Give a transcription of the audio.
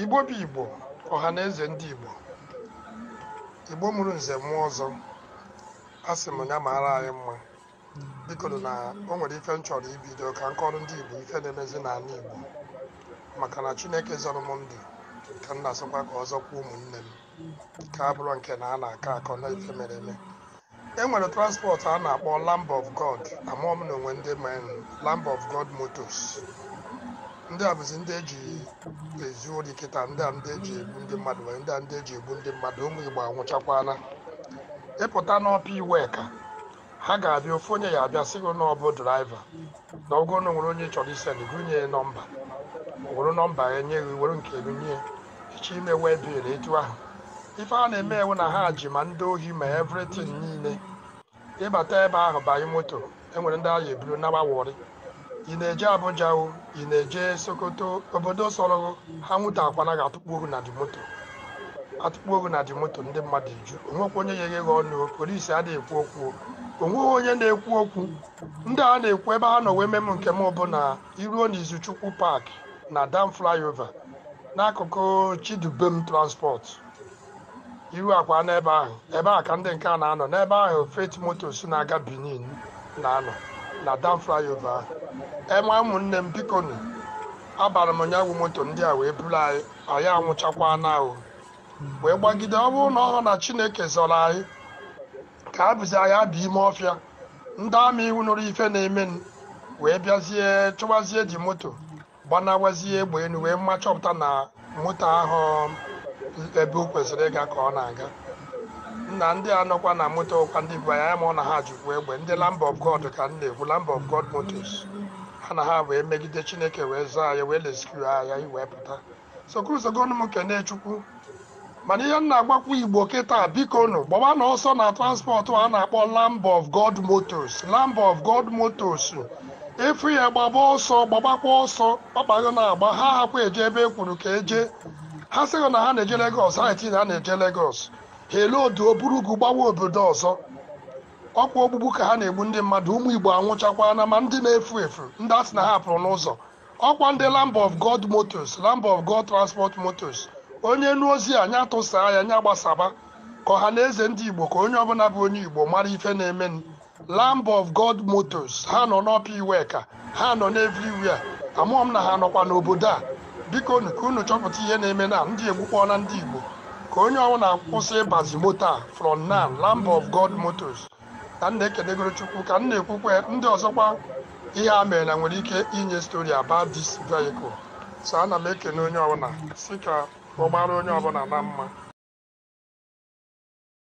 igbo bụ igbo ọha na eze ndị igbo igbo mụrụ nze mmụọ ọzọ a sị m ya maara anyị mma biko na o nwere ife m chọrọ ibido ka nkọrọ ndị igbo ife na-emezi n'ala igbo maka na chineke zọrọ m ndụ ka m na-asọkwa ka ọzọ kwa ụmụnne m ka a bụrụ nke na a na-akọ akọ na ife mere eme e nwere transport a na-akpọ Lamb of God amaọm na onwe ndị men Lamb of God Motors ndị a bụzi ndị eji ezi ori kịta ndị a ndị eji egbu ndị mmadụ nwere ndị a ndị eji egbu ndị mmadụ ụmụ igbo anwụchakwala ịpụta n'ọpa iwe ka ha ga-abịa ofu onye ya abịa sị gị na ọ bụ draiva na ọgụ na nwere onye chọrọ isen gụnye nọmba were nọmba ya nye gị were nke gị nye echi ime wee biri etu ahụ ife a na-eme ewu na ha ji ma ndị ohi ma evritin niile ịbata ebe ahụ banye moto enwere ndị a eburu nawa wori ị na-eje Abuja ị na-eje Sokoto obodo sọrọ ha nwụta akwana ga-atụkpu ohu na dị moto atụkpu ohu na dị moto ndị mmadụ eju onwekwa onye yeghe ghe ọnụ polisi adịghị ekwu okwu onweghị onye na-ekwu okwu ndị a na-ekwu ebe ha nọ wee mem nke m bụ na iruo n'izuchukwu park na dam flyover n'akụkụ chidubem transport iru akwa n'ebe ahụ ebe a ka ndị nke a na-anọ n'ebe ahụ feti motos na-aga benin na-anọ na dam flyover ahụ enwe ụmụnne m bikonu abara m ụnyaahụ moto ndị a wee buru anyị anyị anwụchakwa n'ahụ wee gbagide ọ bụrụ na ọ na chineke zọrọ anyị ka a bụzi anyị abịa ime ọfịa ndị ama iwu nụrụ ife na-eme wee bịazie chụwazie ji moto gbanawazie egbe elu wee mma chọpụta na moto ahụ ebe o kwesịrị ịga ka ọ na-aga na ndị anọkwa na moto ọkwa ndị bụ anya ma ọ na ha jụkwa egbe ndị Lamb of God ka m na-ekwu Lamb of God motos ha na ha wee megide Chineke wee zaa ya wee leskiu anya wee pụta sokurusogonụ m kene Chukwu mana ihe m na-agbakwu Igbo kịta nụ gbawa na ọsọ na transpọtụ a na-akpọ Lamb of God motos Lamb of God motos efu ya gbaba ọsọ gbabakwa ọsọ ọkpago na-agba ha hakwa eje ebe e kwuru ka eje ha sịrị na ha na-eje Legos ha etinye ha na-eje Legos hele odu oburu ugwu gbawa obodo ọzọ ọkwa ogbugbu ka ha na-egbu ndị mmadụ ụmụ igbo anwụchakwa na ma ndị na-efu efu ndị asị na ha pụrụ n'ụzọ ọkwa ndị Lamb of God Motors Lamb of God Transport Motors onye nu ozi a nya tụsaa ya nya gbasaba ka ọha na eze ndị igbo ka onye ọbụla bụ onye igbo mara ife na eme Lamb of God Motors ha nọ n'ọpa iwe ka ha nọ n'evriwia amụọ m na ha nọkwa n'obodo a biko unu ka unu chọpụta ihe na-eme na ndị egbukpọna ndị igbo ka onye ọbụla akwụsị ịbazi moto a from now Lamb of God Motors ka m na-ekedegoro Chukwu ka m na-ekwukwe ndị ọzọkwa ihe a mere na nwere ike inye stori about dis vehicle so ana m ekene onye ọbụla si ka ọ gbara onye ọbụla na mma